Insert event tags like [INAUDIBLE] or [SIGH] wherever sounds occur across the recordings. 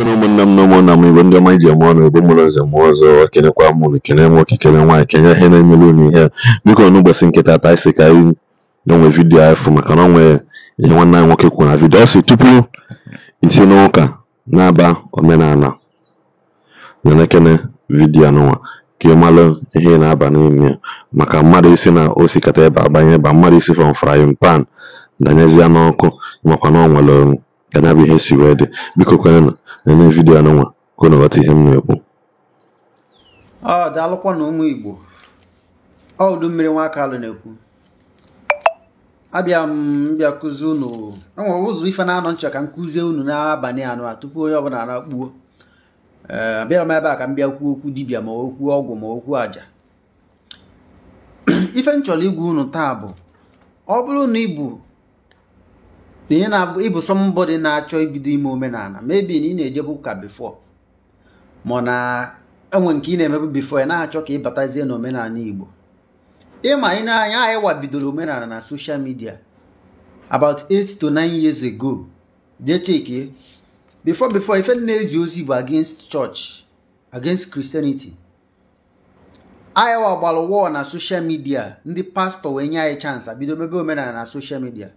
Ekene ụmụnne m na ụmụnna m Igbo ndị ọma iji eme ọnụ bụ mụrụ nze mụọ ọzọ kenekwa mụrụ kene nwoke kene nwa kenye ihe na-enyere unu ihe biko n'ụbọchị nkịta taa isi ka anyị n'onwe vidiyo afọ maka na onwe ihe nwanne anyị nwoke kwuru na vidiyo ọ tupu isi n'ụka na-aba omenala na na vidiyo anụnwa ka ị malụ ihe na-aba n'ime maka mmadụ isi na osikata ebe abanye ebe mmadụ isi fọm frying pan danyezie n'ọkụ makwa na ọ nwere Nke na bụ ihe si wee dị biko kwenụ na vidio anụnwa ka unu ghọta ihe m na-ekwu ọ daalụkwa na ụmụ Igbo ọ udu mmiri nwa aka alụ na-ekwu abịa m bịa kụzi unu enwere ụzọ ife na-anọ nchọ ka m kụzie unu n'abalị anụ a tupu onye ọbụla na-akpuo abịara m ebe a ka m bịa kwuo okwu dibịa ma okwu ọgwụ ma okwu aja [CLEARS THROAT] ife m chọrọ igwe unu taa bụ ọ bụrụ na ibu. na ihe na-abụ ịbụ sọmbọdị na-achọ ibido ime omenala mebi na ị na-ejebu ụka bifọ ma na enwe nke ị na-emebu bifọ ya na-achọ ka ị batazie n'omenala Igbo ịma ị na-anya anyị wabidoro omenala na social media about 8 to 9 years ago jee chekie before before ife na-ezi ozi bụ against church against Christianity anyị wagbara wọl na social media ndị pastọ wee nye anyị chance bido mebe omenala na social media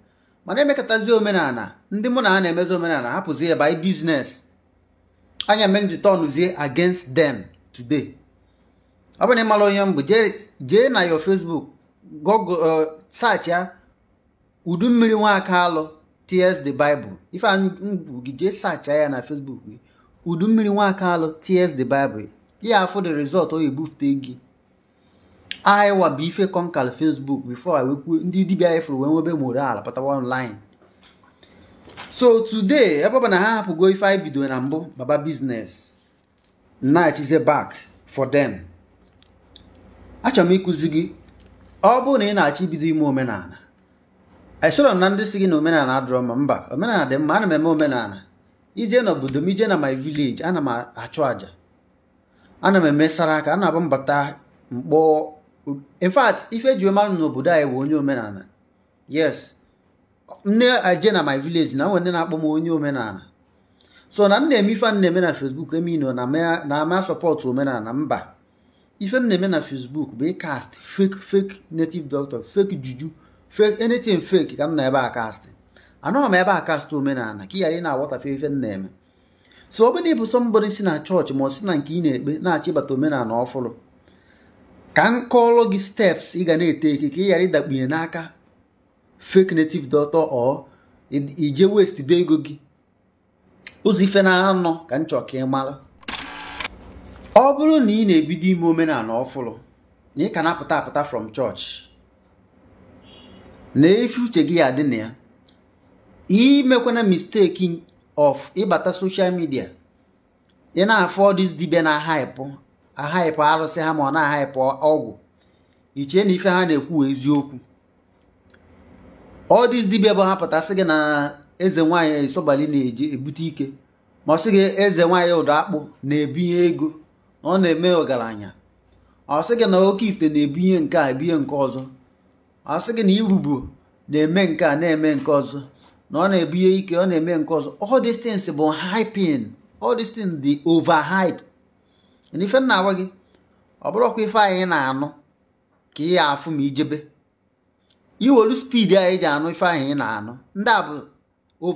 mana na-emekọtazi omenala ndị mụ na ha na-emezi omenala hapụzi ya by business anya mere ji tọnụzie against them today ọ bụrụ na ịmara onye mbụ jee na yo Facebook google uh, search ya udu mmiri nwaka alụ ts the Bible ife ngwu gị jee searcha ya na Facebook gị udu mmiri nwaka alụ ts the Bible ya afụ the result o ebufute gị Iowa bụ ife kọnkal Facebook before I wekwuo ndị dibia efuru wee nwebe moral pụtawa online so today ebe ọ na ha hapụgo ife anyị bido na mbụ baba business na-achize back for them achọrọ m ịkụzi gị ọ bụrụ na ị na-achọ ibido ime omenala esoro m na ndị si gị na omenala adọrọ mma mba omenala dị mma ana m eme omenala ije n'obodo m ije na my village ana m achụ àjà ana m eme sara aka ana m abụ mbata mkpọ in fact ife n'obodo anyị bụ onye omenala yes nne eje na my village na nwere na-akpọ m onye omenala so na nna eme ife na-eme na facebook eme ino na ama sọpọtụ omenala mba ife m na-eme na facebook bụ ịkast fake fake native doctor fake juju fake anything fake ka m na ebe a kast anọghị m ebe a kast omenala ka ị ghara ị na-aghọtafe ife m na-eme so ọ bụrụ na ịbụ sọmbọdị si na chọọchị ma ọ si na nke ị na-ekpe na achị bata omenala ọfụrụ ka m gị steps ị ga na ete ka ị ghara ịdakpunye n'aka fake native doctor or ije west be ego gị ụzọ ife na-anọ ka m chọọ ka ị mara ọ bụrụ na ị na-ebido ime omenala ọfụrụ na ị ka na-apụta apụta from church na efi uche gị adị na ya imekwana misteki of ịbata social media ị na-afọ dis na hype ahaịpụ arụsị ha ma ọ na-ahaịpụ ọgwụ ichie na ife ha na-ekwu eziokwu ọ dịz dibịa bụ hapụta sị gị na eze nwaanyị esobali na-eji ebute ike ma ọ sị gị eze nwaanyị ụdọ akpụ na-ebinye ego ọ na-eme ọgaranya ọ gị na oke ite na-ebinye nke a ebinye nke ọzọ ọ gị na irubo na-eme nke a na-eme nke ọzọ na ọ na-ebinye ike ọ na-eme nke ọzọ all bụ hyping all dị ova dị na ife nna agwa gị ọ bụrụ ọkwa ife anyị na-anụ ka ị ya afụ ma ijebe iwelu spidi anyị ji anụ ife anyị ị na-anụ ndị a bụ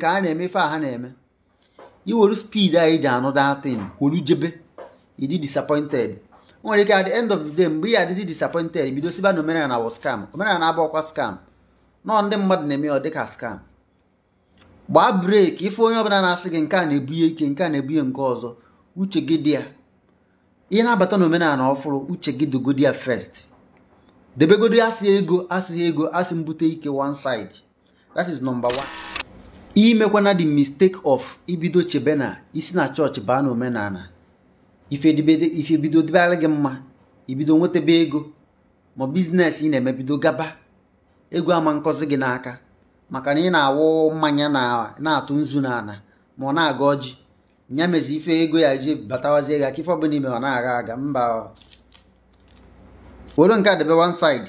ka a na-eme ife a ha na-eme iwelu spidi anyị ji anụ datin kwolu jebe ịdị disappointed o nwere ike at the end of the day mgbe ị adịzi disappointed bido siba na omenala wọ scam omenala abụ ọkwa scam nọọ ndị mmadụ na-eme ọ dịka scam gbaa breeki ife onye ọbụla na-asị gị nke a na-ebunye ike nke a na-ebunye nke ọzọ uche gị dị ya ihe na-abata na omenala ọfụrụ uche gị dogodi ya first debegodi asị ego asị ego asị mbute ike one side that is number one imekwana the mistake of ibido chebe na isi na chọọchị baa na omenala ife bido gị mma ibido nwetebe ego ma biznes ị na-emebido gaba ego ama nkọzi gị n'aka maka na ị na-awụ mmanya na-atụ nzu n'ala ma ọ na-aga ọjị ya mezi ife ego ya ji batawazie ya ka ife ọbụla ime ọ na-agha aga mba were nke a debe one side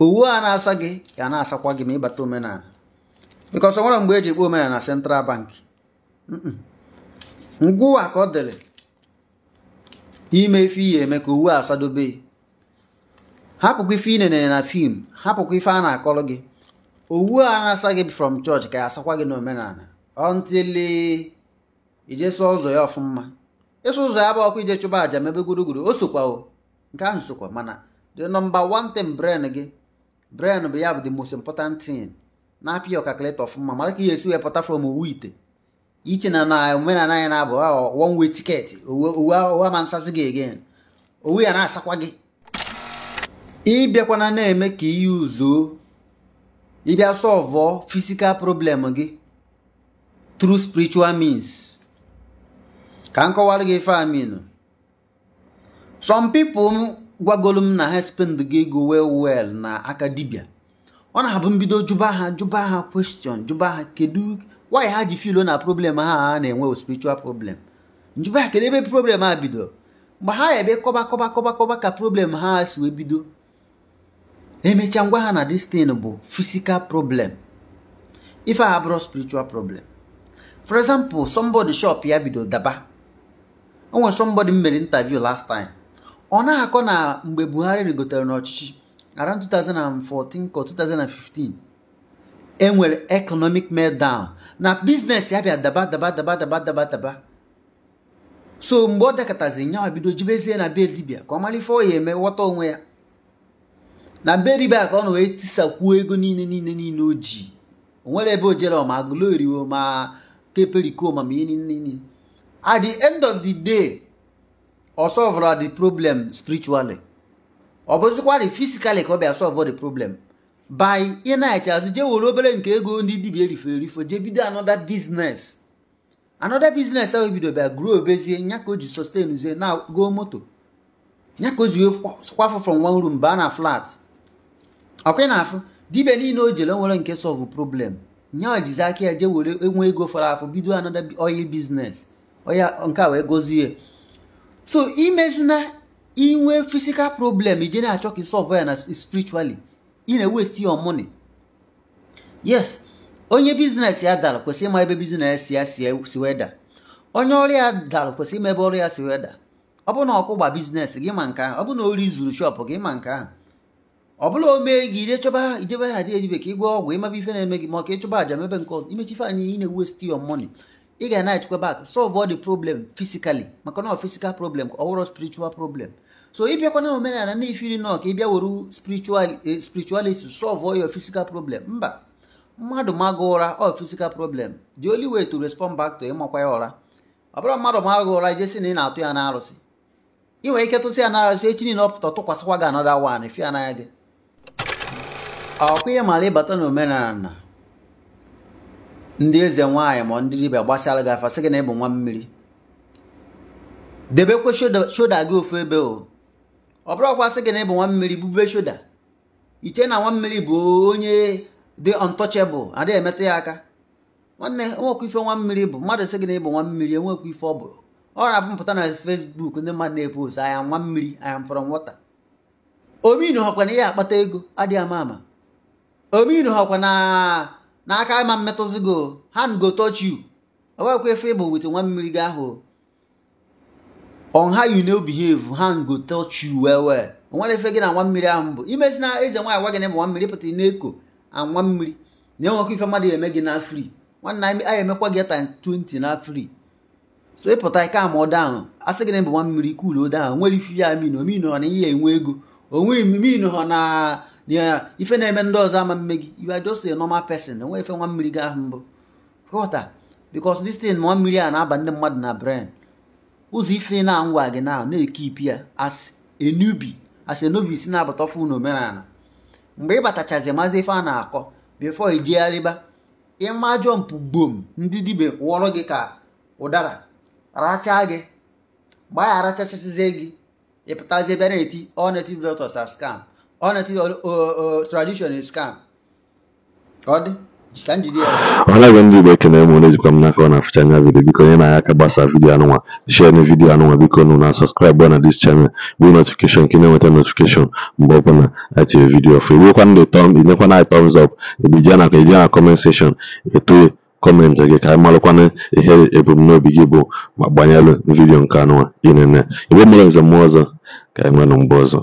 owu a na-asa gị ya na-asakwa gị ma ịbata omenala because ọ nwere mgbe eji ekpe omenala na central bank ngwụwa ka ọ dịrị ime ife ihe eme ka owu asadobe hapụkwa ife inenere na fim hapụkwa ife a na-akọrọ gị owu a na-asa gị from chọọchị ka ya asakwa gị na omenala ọntịlị ijeso ụzọ ya ọfụma ịsụ ụzọ ya bụ ọkụ ije chụba aja mebe gburugburu o sokwa o nke ahụ sokwa mana the number one thing brain gị brain bụ ya bụ the most important thing na apịa ya ọkakalịta ọfụma mara ka ihe esi wee pụta from owu ite iche na na omenala anyị na-abụ one way tiketi owu ama nsazi gị again owu ya na-asakwa gị ịbịakwana na-eme ka iyi uzuo ịbịa sọvọ fisikal problem gị through spiritual means ka m kọwara gị ife amin some people gwagolu m na ha spend gị ego well well na aka ọ na-abụ mbido jụba ha jụba ha question jụba ha kedu why ha ji filo na problem ha na-enwe spiritual problem njụba ha kedu ebe problem ha bido mgbe ha ebe kọba kọba kọba kọba ka problem ha si wee bido emechaa eh, ngwa ha na destin bụ physical problem ife a abụrụ spiritual problem for example somebody shop ya bido daba onwe somebody m mere interview last time ọ na-akọ na mgbe Buhari rigotere n'ọchịchị around 2014 ka 2015 enwere economic meltdown na biznes ya bịa daba daba daba daba daba daba so mgbe ọ dakọtazi nyawa bido jibezie na be dibia ka ọ mara ife ọ ya eme ghọta onwe ya na be ka ọ na wee tisakwuo ego niile niile niile o ji ebe o jere ma agụlo eriwo ma kepeli nini at the end of the day ọ solvra the problem spiritually ọ bụzikwarị physically ka ọ bịa solve the problem by ịnachi azụ je were obere nke ego ndị dibia erifere erifo jee bido anoda biznes another business ahụ bido bịa grow obezie nya ka o sustain na go moto nya ka o kwafụ from one room baa na flat ọkwa na afụ dibia niile o jere nwere nke solve problem nye jizi aka ya jee were enwe ego fọrọ afọ bido anọda oil biznes oya nke a wee gozie so imezina inwe physical problem ije na-achọ ka isolve ya na spiritually ị na-waste your money yes onye biznes ya dara kwesị ịma ebe bizines ya si weda onye ọrụ ya dara kwesị ịma ebe ọrụ ya si weda ọ bụ na ọkụgba bizines gị ma nke ahụ ọ bụ na ori zuru shop gị ma nke ahụ ọ bụla omee gị ije chọba ijebe haji edibe ka ị gwa ọgwụ ịmaba ife na-eme gị ma ka ịchọba aja mebe nke ọzọ imechi ị na niile west your ị ga na-echekwa bak solve all dị problem fisikali maka na physical problem ọ wụrụ problem so ịbịakwa na omenala na ifiri nọ ka ịbịa were spiritual eh, spirituality solve ya your problem mba mmadụ magụ ụra all physical problem dị oli wee to respond back to ịmakwa ya ụra ọ bụrụ mmadụ magụ ụra jesi na ị na-atụ ya n'arụsị ị nwere ike tụsị ya arụsị echi niile ọ pụta tụkwasịkwa gị anọda wan fi n'anya gị ọkwa mara ịbata n'omenala ndị eze nwaanyị ma ndị dibịa gbasara gị afasị gị na ịbụ nwa mmiri debekwe shoda gị ofu ebe o ọ bụrụ ọkwa sị gị na ịbụ nwa mmiri bube shoda iche na nwa mmiri bụ onye dị untouchable adịghị emetụ ya aka nwanne enwekwa ife nwa mmiri bụ mmadụ sị gị na ịbụ nwa mmiri enwekwa ife ọ bụ ọ na apụpụta na fesbuk ndị mmadụ na-epost anya nwa mmiri anya mfọrọ nwata ominu họkwa na ihe akpata ego adịghị ama ama ominu hakwa na n'aka ma mmetụzigo hand go touch you owekwa efe ịbụ wit nwa mmiri gị ahụ on how you no behave hand go touch you well well nwere efe gị na nwa mmiri ahụ mbụ imezi na eze nwaanyị gwa gị na ịbụ nwa mmiri pụta na-eko anwa mmiri na-enwekwa ife mmadụ eme gị na free nwanne anyị emekwa gị times 20 na fri so ịpụta ike ama down asị gị na ịbụ nwa mmiri kulo down nwere ife ya amino omino na ihe enwe ego onwe omino ha na ife na-eme ndị ọzọ ama mme gị are just a normal person enwe ife nwa mmiri gị ahụ mbụ kọta because this thing nwa mmiri a na-aba ndị mmadụ na brain ụzọ ife na-angwa gị na na-ekipi ya as enubi as a novice na-abata ọfụ omenala. mgbe ị batachazi mazi ife a na-akọ before i jegharịba ịma jọmpụ gbom ndị dibia wọrọ gị ka ụdara rachaa gị mgbe a ya arachachazie gị ịpụtazie bịa na-eti all native doctors are ọnetị tradition is scam ka ọ dị ka njide ọnagwe ndị igbo ekene m na-ejikwa m n'aka ọ na-afụcha anya vidio biko onye na aka gbasa vidio anụnwa share vidio anụnwa biko nụ na sọskraịbụ na dis chanel bụ notifikeshọn ka ị na-enweta notifikeshọn mgbe ọbụla atiri vidiyo ọfụ iwekwa ndị tọm inyekwa na tọms ọp ebije na eje na kọment sekshọn etoe kọmentị gị ka anyị malụkwana ihe ebumnobi gị bụ ma gbanyelụ vidio nke anụnwa ị na-eme igbe mmụrụ nze mmụọ ọzọ ka anyị nwee na mgbe ọzọ